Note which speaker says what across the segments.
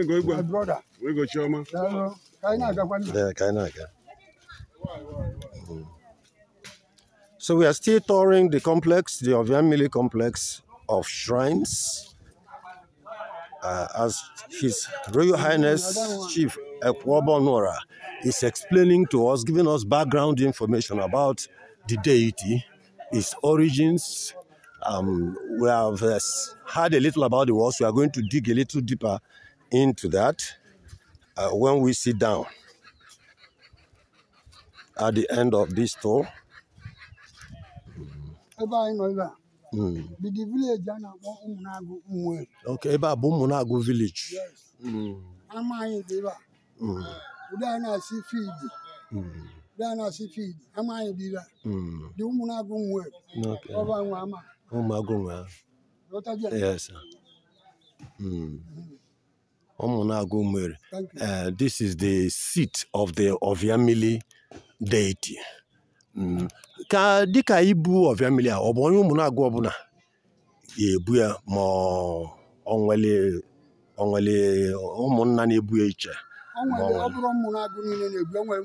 Speaker 1: go. My brother. go, Choma. Yeah, Kainaga.
Speaker 2: Mm-hmm. So we are still touring the complex, the Oviamili complex of shrines. Uh, as His Royal Highness Chief Ekwobonora is explaining to us, giving us background information about the deity, its origins. Um, we have uh, heard a little about the walls. We are going to dig a little deeper into that uh, when we sit down at the end of this tour. Mm. Okay, ebe a village.
Speaker 3: Amaghị dị ebe a. Ụdị a na-asị fiidi.
Speaker 2: Ụdị
Speaker 3: a na-asị fiidi. Amaghị Okay. ebe a. Dị Yes.
Speaker 2: Mm. Mm. Omunagu Umere. Uh, this is the seat of the Oviamili deity. Mm. Ka dịka ibu Oviamili a ọ bụ onye Omunagu ọbụla ga-ebu ya ma ọ ọ nwere nwere ụmụnna na-ebu ya iche
Speaker 3: ọ bụrụ ụmụnagụ niile na-ebu enwe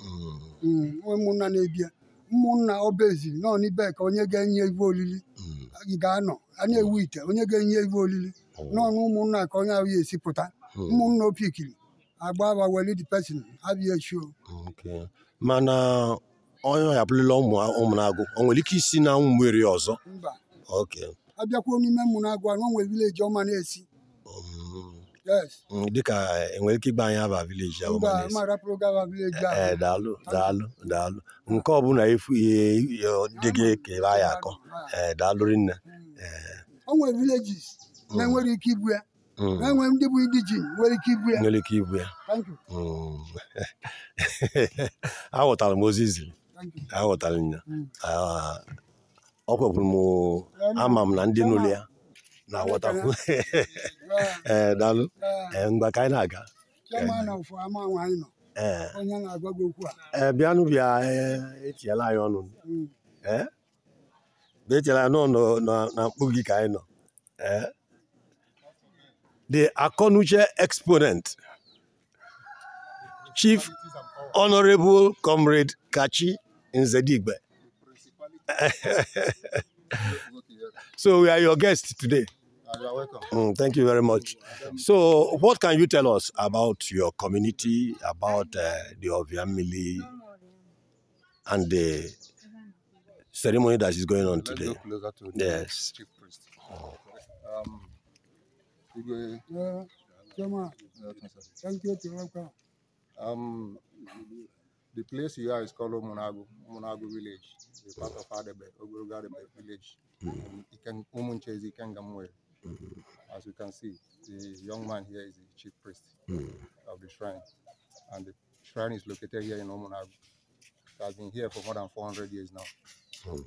Speaker 3: mm. mm, ụmụnna na-ebu ya ụmụnna na-ebu ya ụmụnna obeziri nọ n'ibe ka onye ga-enye ibe olili ị ga-anọ a na-ewu ite onye ga-enye ibe olili n'ọnụ ụmụnna ka onye ahụ ya esi pụta ụmụnna opikiri agba welid pesin abịa echio
Speaker 2: mana onye ụmụ hapụrụla ụmụnagụ o nwere ike isi na nwere ọzọ
Speaker 3: abịakwuo n'ime na ụmụnagụ anụ nwere vileji ọma na-esi
Speaker 2: hmm. Hmm, dịka enwere ike ịgba anyị aba vileji ahụ eh, daalụ daalụ daalụ nke ọbụla efu e, e, e, dị gị ka ebe anyị akọ daalụ rinne
Speaker 3: o nwere vileji na-enwere mm. ike ibu ya mm. na-enwe ndị bụ ndị ji nwere ike ibu ya nwere
Speaker 2: ike ibu ya mm. aghọtara m ozi ziri aghọtara ya ọ ah, m ama m na ndị n'ụlọ ya na-aghọtakwu ee eh, daalụ eh, mgbe ka anyị na-aga eh, bịanụ bịa etinyela anyị ọnụ etinyela anyị nọ na mkpu gị ka anyị nọ the Akonuche exponent, Chief Honorable Comrade Kachi Nzedigbe. so we are your guests today. Ah, you are welcome. Mm, thank you very much. So what can you tell us about your community, about uh, the Oviamili and the ceremony that is going on today?
Speaker 4: Yes. Um, Thank you to Um, the place you are is called Munago, Munago village, the part of Adebe, Ogurugadebe village. Mm -hmm. As you can see, the young man here is the chief priest mm -hmm. of the shrine. And the shrine is located here in Omunago. It has been here for more than 400 years now. Mm -hmm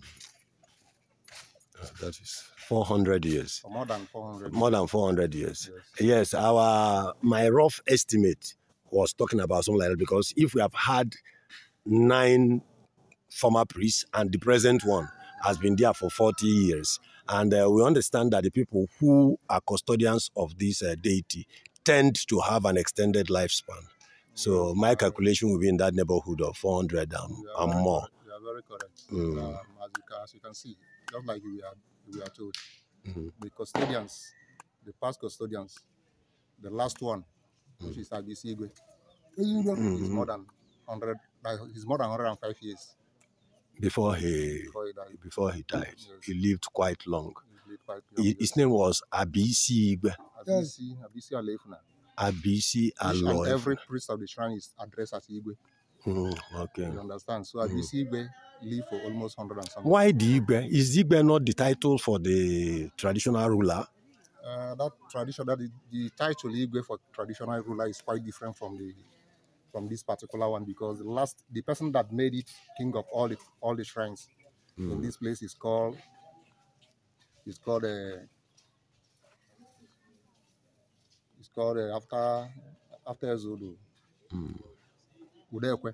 Speaker 2: that is 400 years.
Speaker 4: more than 400. More
Speaker 2: than 400 years. Yes. yes, our my rough estimate was talking about something like that because if we have had nine former priests and the present one has been there for 40 years, and uh, we understand that the people who are custodians of this uh, deity tend to have an extended lifespan. So my calculation will be in that neighborhood of 400 and, and more.
Speaker 4: You are very correct. Mm. Um, as, you can, as you can see, just like we are, we are told. Mm -hmm. The custodians, the past custodians, the last one, which mm-hmm. is Agis Igwe, is more than 100, like, he's more than 105 years.
Speaker 2: Before he, before he died, before he, died. Yes. he lived quite long. His name was Abisi Igwe.
Speaker 4: Abisi, Abisi Alefna.
Speaker 2: Abisi Alefna. Every
Speaker 4: priest of the shrine is addressed as Igwe. Mm, okay. You understand? So Abisi mm. Igbe lived for almost 100 and something. Why
Speaker 2: the Igbe? Is Igbe not the title for the traditional ruler?
Speaker 4: Uh, that tradition, that the, the title Igwe for traditional ruler is quite different from the from this particular one because the last the person that made it king of all the all the shrines mm. in this place is called is called a uh, it's called uh, after after Zodo. Mm. Udekwe.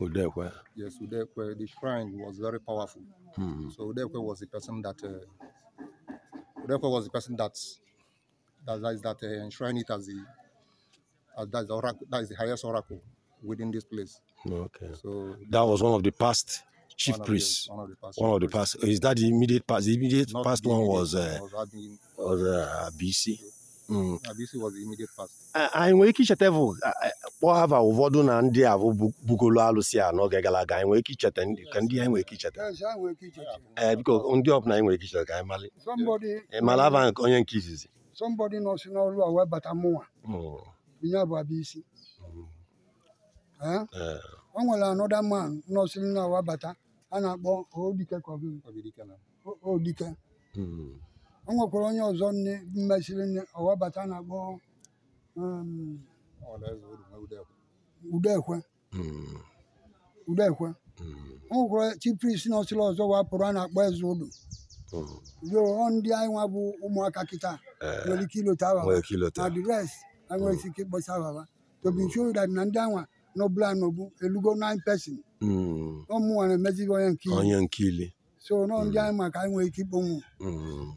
Speaker 4: Udekwe. Yes, Udekwe. The shrine was very powerful. Mm. So Udekwe was the person that uh, Udekwe was the person that that that, that uh, enshrined it as the as that is the oracle, that is the highest oracle within this place. Okay. So that
Speaker 2: was one of the past chief priests. One of the past. One of the past. Is that the immediate past? The immediate Not past the immediate, uh, one was uh, was,
Speaker 4: was uh, BC. Uh, Abusi mm. was the immediate past.
Speaker 2: anyị nwere ike icheta bụ kpọọ ụfọdụ na ndị a bụ bugolo alụsị a n'oge gara aga anyị nwere ike icheta ka ndị anyị nwere ike icheta ee eh, biko ndị ọbụla anyị nwere ike icheta ka anyị mali
Speaker 3: eh, mara hava onye nke izizi somebody nọ si n'ọrụ a wee bata mụnwa ya mm. bụ Abusi mm. eh? o nwere anọda man nọ si n'ọrụ a bata a na-akpọ Odike ka Odike o nwekwara onye ọzọ nne mmesiri nne ọwabata na-akpọ um, udekwe hmm. udekwe o hmm. nwekwara chipris n'ọsịla ọzọ wapụrụ a na-akpọ eze ụlọ hmm. yoo ndị anyị nwa bụ ụmụaka kịta eh. nwere ike ilota awawa adres nwere ike ịkpọcha awawa tobishodat na ndị anwa n'ọbụla n'obu elugo 9 pesin ọmụnwa na-emezighị onye nke ili so nọ ndị anyị maka ike ikponwu
Speaker 2: mm.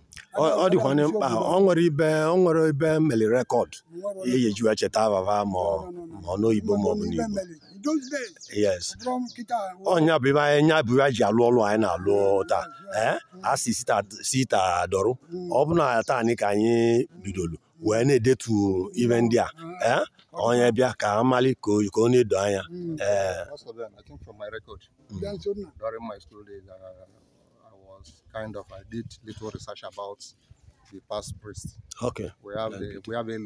Speaker 2: ọ dịkwanye mkpa ọ nwere ibe ọ nwere ibe cheta ababa ma ọ n'oyibo ma ọ bụ n'igbo yes ọnya bụ ibe anyị nya bụ ji alụ ọlụ anyị na-alụ ee a si sita dọrụ mm. ọ bụ na ka anyị bidolu wee na-edetu ibe ndị a mm. ee onye bịa ka amali ka na-edo anya
Speaker 4: was kind of I did little research about the past priest. Okay. We have the we have Elo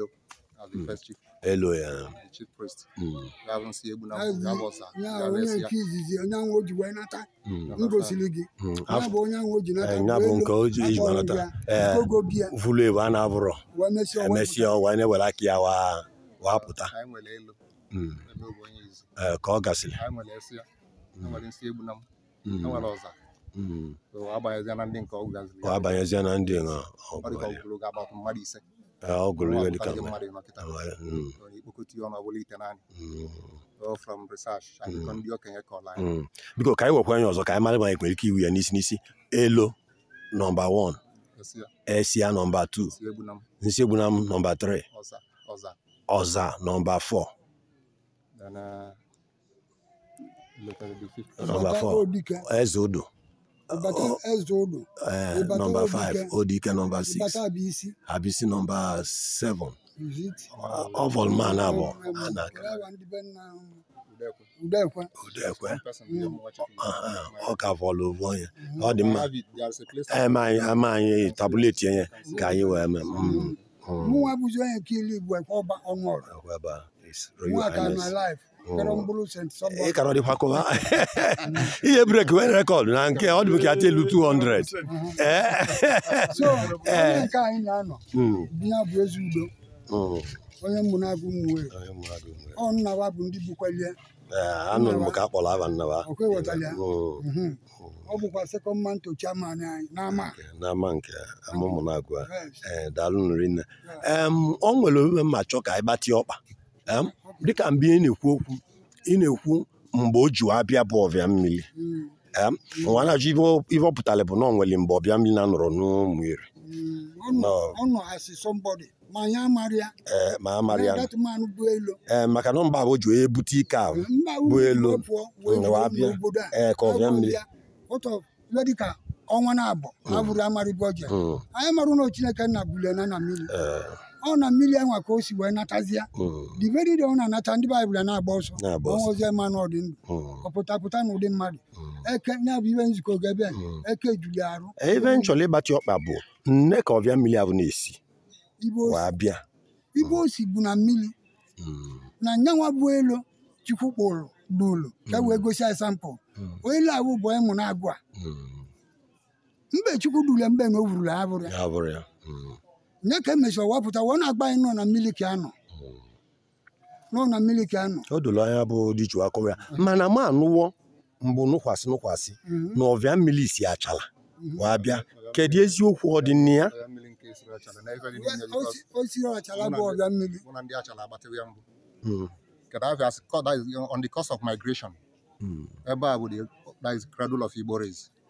Speaker 4: as the mm. first chief. Elo, yeah. The chief priest. Mm. We haven't seen Ebu
Speaker 2: yeah. Ka ọ gasịrị. Mm. ọ abanyezia na ndị nga ọ gụrụ dịka mm. mm. biko ka anyị nwekwa onye ọzọ ka anyị mara ma anyị ike iwu ya n'isi n'isi elo nọmba 1 esia nọmba 2 nọmba 3 ọza nọmba 4 eze odo
Speaker 4: ibata ezodo. Uh,
Speaker 2: number five odike number six ibata abisi. abisi number seven. ọfọl ah, man abọ anaka. udekwe. udekwe ọka fọlụ ụvọ ya ọ dị mma ama anyị tabuleti ya ka anyị wee mee.
Speaker 3: mụ nwa bụzi onye ka ilu igbo ekwe ọba ọnụ ọrụ.
Speaker 2: mụ aka na laịfụ.
Speaker 3: ị oh. e, ka
Speaker 2: ọdịkwakọba ihe brek nwere rekọd na nke ọ dịbụ ka ata elu 200 uh-huh. ee eh? eh. na-anọ hmm.
Speaker 3: hmm. onye ọ nnawa bụ ndị eh,
Speaker 2: anụrụ m ka a kpọrọ aba nnawa hmm.
Speaker 3: Mhm. ọ bụkwa anyị n'ama
Speaker 2: n'ama nke amụmụ na daalụ nri nne ọ nwere ome mma chọọ ka anyị gbatịa ọkpa dịka mgbe ị na-ekwu okwu ị na-ekwu mgbe o ji abịa bụ ọbịa mmiri nwa na-ajụ ihe ọ pụtara bụ na ọ nwere mgbe ọbịa mmiri na-anọrọ n'ụmụ iri
Speaker 3: hmm. ma amara ya
Speaker 2: ee e, maka na mba bụ ji onye bute ike ahụ bụ elu e, ka ọbịa mmiri
Speaker 3: ọnwa na-abụ hmm. abụrụ amarịbụ ọjọọ hmm. anyị marụ na Chineke nna bụlie na na Mm. ọ na mmiri enwe ka o si wee natazie diveride ọ na nata ndị baịbụl na-agba ọsọ ọnwa ozi ma na ọdị ndụ mm. ọpụtapụta na ụdị mmadụ mm. eke na-abụ ihe nzukọ ga-ebe eke juli arụ ebe m ịgbatị
Speaker 2: ọkpa bụ nne ka ọbịa mmiri ahụ na-esi
Speaker 3: ibe osi bụ na mmiri na nyanwa bụ elu chukwu kpụrụ dulu ka wee gosi asampụ elu ahụ bụ ịmụ na agụ mbe chukwu dule mbe na o wurula abụrụ ya nye ka emechara wapụta wee na-agba anyị nọ na miliki anọ nọ na miliki anọ o doro anya bụ dịju akọrọ ya mana m anụwo
Speaker 2: mgbe nụkwasị nụkwasị na ọvịa mmiri si achala wee bịa kedu eziokwu ọ dị ya
Speaker 4: achala bụ ọvịa mmiri on the course of migration ebe a bụ that cradle of Igbo race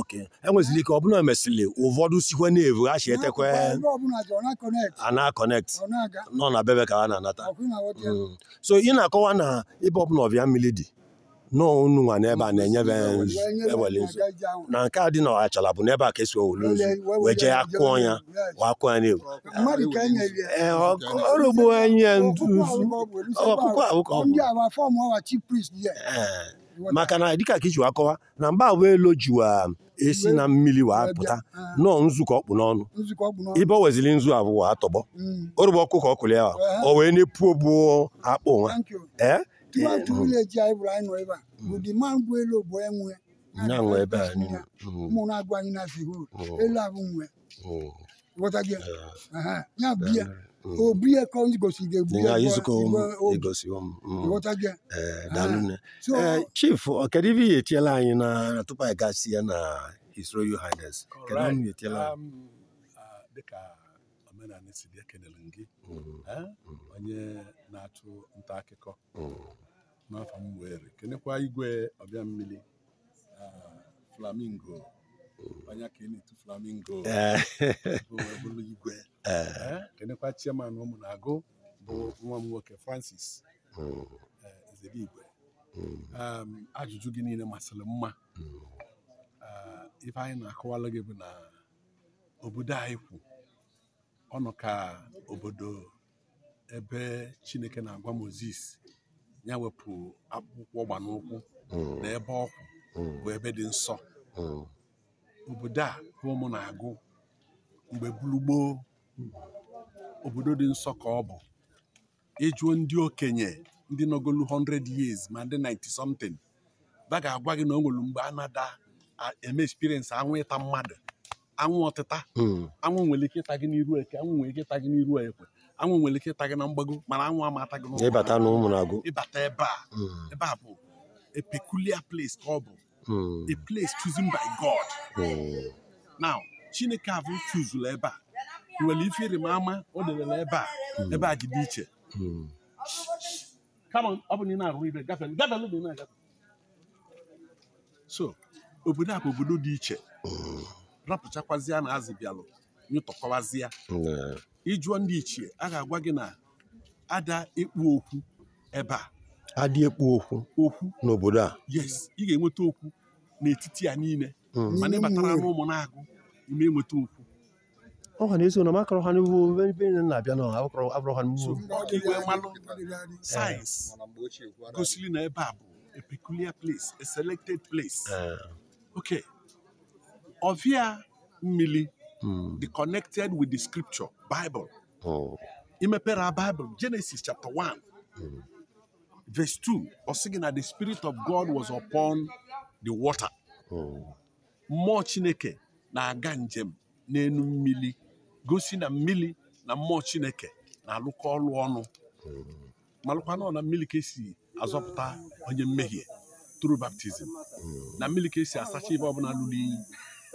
Speaker 2: ok enwezili ike ọ bụla e mesịrị ụfọdụ sikwa na-evu ha si etekwe a na nọ na bebe ka ha na-anata
Speaker 3: mm.
Speaker 2: so ị na-akọwa na ịbụ ọbụla ọbịa mmiri dị n'ọnụ nwa n'ebe a na-enyebe mm. ewele nzu na nke a dị na ọgachala bụ n'ebe a ka esi owele nzu wee jee akụọ ya wee akụọ ya n'ewu
Speaker 3: ọrụgbu enye nzu ọkpụkpọ ahụ ka ọ bụ
Speaker 2: maka na dịka ka iji wa akọwa e na mgbawa elu jiwa esi na mmiri wee pụta ah. nọọ nzukọ ọkpụ n'ọnụ ibe wezili nzu abụọ atọgbọ mm. ọkụ ọkụkọ ọkụli ya o wee na-epu mm. bụ akpụ mm.
Speaker 3: nwa ya bụ obu ya ka igosiri egbu
Speaker 2: ya chief ọkedu ya etiela anyị na tupu anyị gasị ya na his royal highness anyị etiela um,
Speaker 1: ah, dịka omenala si bịa gị mm, mm. Eh, onye na-atụ nta akụkọ mm. n'afọ m igwe ọbịa ah, flamingo onye ka ị na-etu flamingo eh. bụrụ igwe eh. Eh, kenekwa chairman ụmụ na-agụ bụ nwa m nwoke Francis hmm. igwe hmm. um, ajụjụ gị niile masịrị mma ife hmm. anyị na-akọwalụ gị bụ na obodo anyị kwu ọnụ ka obodo ebe Chineke na-agwa moses ya wepụ akpụkpọ na ebe ọkwụ bụ ebe dị nsọ obodo a ụmụ na-agụ mgbe gburugboo obodo dị nsọ ka ọ bụ ịjụọ ndị okenye ndị nọgolu 100 years ma ndị 90 something ba ga-agwa gị na o nwere mgbe a eme experience anwụ ịta mmadụ anwụ ọtịta hmm. anwụ nwere ike ịta gị n'iru eke nwere ike ịta gị n'iru ekwe anwụ nwere ike ịta gị na mgbago mana ịbata ebe a hmm. ebe a bụ a place ka ọ bụ Hmm. a place chosen by God hmm. now Chineke abụ chuzula ebe a nwere ife ịrịmama o debere ebe a hmm. ebe a dị iche so obodo a bụ obodo dị iche rapụchakwazịa na azịbịalụ nyụtọkọwazịa ịjụọ ndị ichie a ga-agwa gị na ada ịkpụ okwu ebe a
Speaker 2: adị ekpu okwu okwu n'obodo a
Speaker 1: yes ị ga-enweta okwu n'etiti ya niile hmm. mana ịbatara n'ụmụ na-agụ ime enweta okwu ọ
Speaker 2: ha na-eso na makọrọ ha n'ugbo ebe nne na-abịa na abụkọrọ abụrọ ha n'ugbo
Speaker 1: sayensị gosiri na ebe a bụ a peculiar place a selected place
Speaker 4: hmm.
Speaker 1: okay ọvịa mmiri the hmm. connected with the scripture Bible imepere Bible Genesis chapter 1 verse 2 ọsị gị na the spirit of God was upon the water mmụọ Chineke na-aga njem n'elu mmili gosi na mmili na mmụọ Chineke na-alụkọ ọlụ ọnụ malụkwa nọ na mmiri ka esi azọpụta onye mmehie tru baptizim na mmiri ka esi asacha ibe ọbụla lụrụ iyi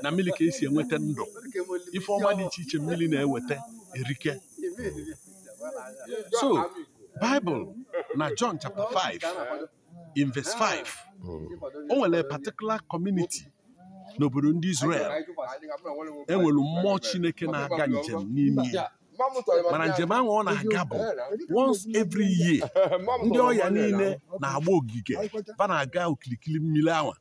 Speaker 1: na mmiri ka esi enweta ndụ ife ọma dị iche iche mmili na-eweta erike so Bible na John chapter 5 in verse 5 o nwere particular community n'obodo ndị Israel
Speaker 3: enwere mmụọ Chineke na-aga
Speaker 1: njem n'ime ya
Speaker 4: mana njem ahụ ọ na-aga bụ
Speaker 1: once every year ndị ọya niile na-agba ogige fana na-aga okirikiri mmiri awa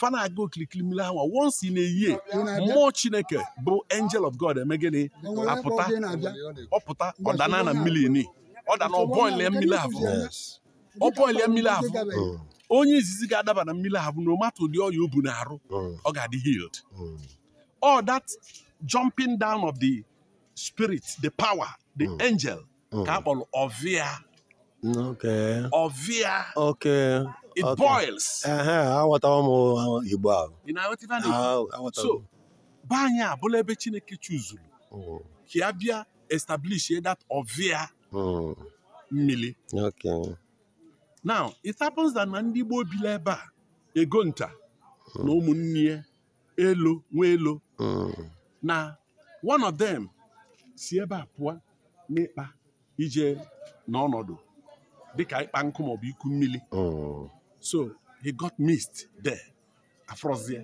Speaker 1: fa na-aga okirikiri mmiri awa once in a year mmụọ chineke bụ angel of God eme gịnị apụta ọpụta ọdana na mmiri ni ọ da na ọbọ ile mmiri ahụ ọbọ ile mmiri ahụ onye izizi ga-adaba na mmiri ahụ no matter ụdị ọya obu na arụ oh. ọ ga-adị healed all oh. oh, that jumping down of the spirit the power the angel ka a kpọrọ ọvịa
Speaker 2: ọvịa it boils aghọtawa m igbo
Speaker 1: ahụ so be anyị abụla ebe chineke chuzuru ka ya bịa establish that ọvịa
Speaker 2: Hmm. mmiri
Speaker 1: now it happens that na ndị Igbo obi ebe a ego nta hmm. na ụmụnne elo nwa hmm. na one of them si ebe a pụọ n'ịkpa ije n'ọnọdụ dịka ịkpa nkụ maọbụ iku mmiri so he got missed there afrozie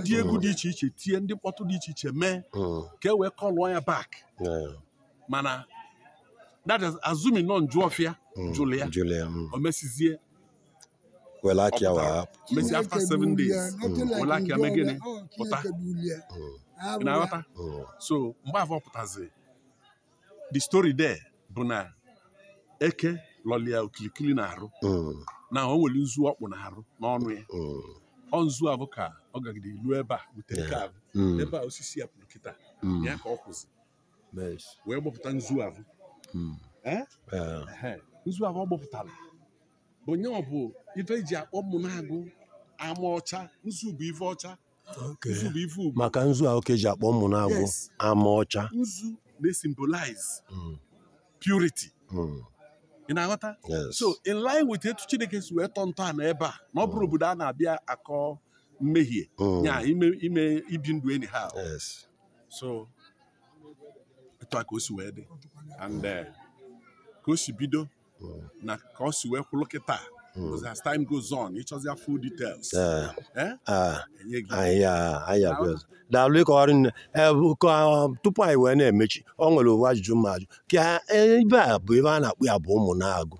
Speaker 1: ndị egwu dị iche iche tie ndị mkpọtụ dị iche iche
Speaker 2: mee ka e wee
Speaker 1: kọlụọ ya bak. mana that is assuming nọ njụ ọfịa
Speaker 2: mm, jụrụ ya mm. o mesizie welaki awa
Speaker 1: mesi after seven days welaki ame gịnị pụta ị na-aghọta so mgbe afọ pụtazi the story there bụ na eke lọlia okilikili na-arụ mm. na o nwere nzu ọkpụ na-arụ n'ọnụ ya ọ nzu avoka ka ọ gagide ilu ebe a butere ebe a osisi ya pụrụ kịta ya ka ọ kwụzi wee gbọpụta nzu ahụ hmm. eh? nzu ahụ ọ gbọpụtara onye ọ bụ ife eji akpọ mụnagụ ama ọcha nzu bụ ife ọcha nzu
Speaker 2: maka nzu ahụ ka eji akpọ mụ mụnagụ ama ọcha
Speaker 1: nzu na-esimbolize hmm.
Speaker 2: purity hmm.
Speaker 1: ị na-aghọta so in line with etu Chineke si wee tọọ ntọala ebe a na ọ bụrụ obodo a na-abịa akọ mmehie nya ime ibi ndụ enyi ha so otu a ka o si wee dị and uh, ka o si bido hmm. na ka o si wee kịta hmm. as time goes on ịchọzi ya full details
Speaker 2: eh? ah. ah, ah, daalụ ịkọgharị nne eh, um, tupu anyị wee na-emechi ọ nwere ụwa ajụjụ m ajụ ka ebe eh, a bụ ebe a na-akpụ ya bụ ụmụ na-agụ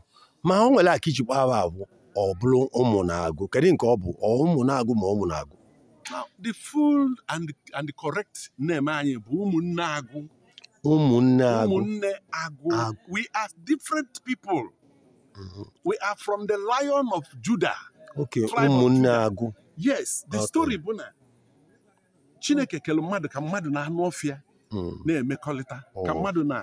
Speaker 2: ma o nwere aka ijikwa aba abụ ọ bụrụ ụmụ na-agụ kedu nke ọ bụ ụmụ na-agụ ma ụmụ na-agụ
Speaker 1: the full and the correct name anyị bụ ụmụnne agụ
Speaker 2: Umunne Umunne
Speaker 1: Agu. We are different people. Mm-hmm. We are from the lion of Judah.
Speaker 2: Okay, Umunne Agu.
Speaker 1: Yes, the okay. story bụ na Chineke kere mmadụ ka mmadụ na-anụ ọfịa mm. na-emekọrịta ka oh. mmadụ na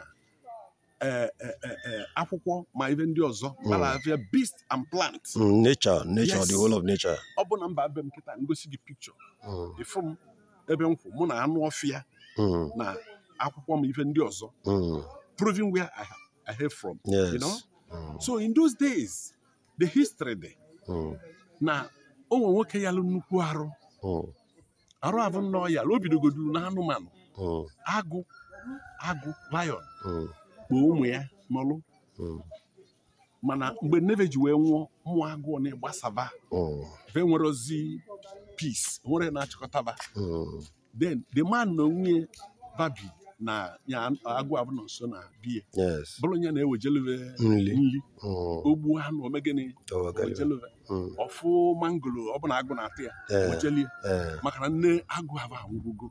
Speaker 1: e, e, e, akwụkwọ ma ibe ndị ọzọ mm. mara afịa beast and plant.
Speaker 2: Mm, nature, nature, the whole of nature.
Speaker 1: Ọ bụ na mba abịa m nkịta ngosi gị pikchọ. Ifu m ebe m kwụ mụ na anụ ọfịa na akwụkwọ m ife ndị ọzọ mm. proving where I, I have from yes. you know mm. so in those days the history dị mm. na onwe nwoke ya lụ nnukwu arụ arụ abụ nnọọ ya o bidogoduru na anụmanụ agụ agụ lion kpoo ụmụ ya n'ọlụ mana mgbe neve ji wee nwụọ mmụọ agụụ na-agbasaba ve nwere ozi peace nwere na-achịkọtaba then the man na onwe babi na ya mm. agụ abụnọ nso na biya bụrụ onye na-ewejeleve nri mm. ogbu anụ omegịnị
Speaker 2: wejeleve mm.
Speaker 1: ọfụ mangoro ọbụla agụ na-atụ ya wejelie maka na nne agụ abụ anwụrụgo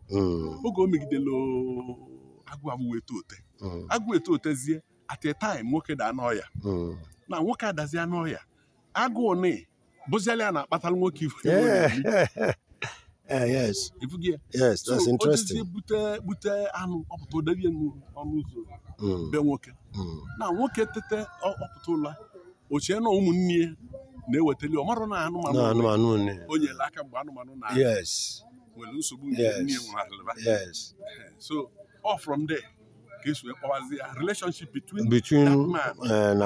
Speaker 1: oge o megidela agụ abụ wee to ote agụ eto otezie at a time nwoke daa anụ na nwoke adazi anụ ọya agụụ ni bụziala ya na-akpatara nwoke
Speaker 2: ife Eh, yes yes that's interesting
Speaker 1: bute bute anụ ọpụta odebie ọnụ ụzọ hmm. be nwoke hmm. na nwoke tete ọpụta ụla ochie na ụmụnne ya na eweteli ọ marụ na anụmanụ o nyere aka mgbe anụmanụ na
Speaker 2: nwere
Speaker 1: nsogbu nke nne nwarịba eh, so all from there ka esi wee kpọwazi ya relationship between that eh, and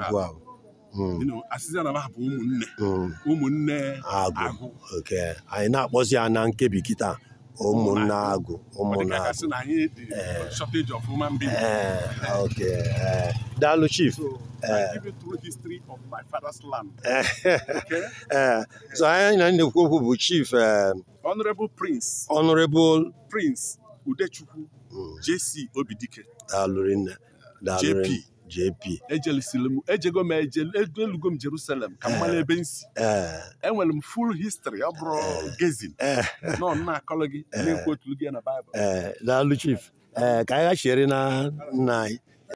Speaker 1: agụ ahụ asịza na bụ ụmụnne
Speaker 2: hmm. ụmụnne agụ oke anyị na-akpọzi ya na nkebi kịta ụmụnne agụ ụmụnne agụ eh. eh, oke eh, daalụ chief ee so anyị na na-ekwu bụ chief
Speaker 1: honorable prince honorable prince udechukwu hmm. jc obidike
Speaker 2: daalụrinne daalụrinne jp
Speaker 1: ejelisiri m ejego m elugo jerusalem ka eh, eh. m mara full history ọ bụrụ eh. gezin não na-akọrọ gị na-ekwu otu gị na baịbụl
Speaker 2: daalụ chief ka anyị na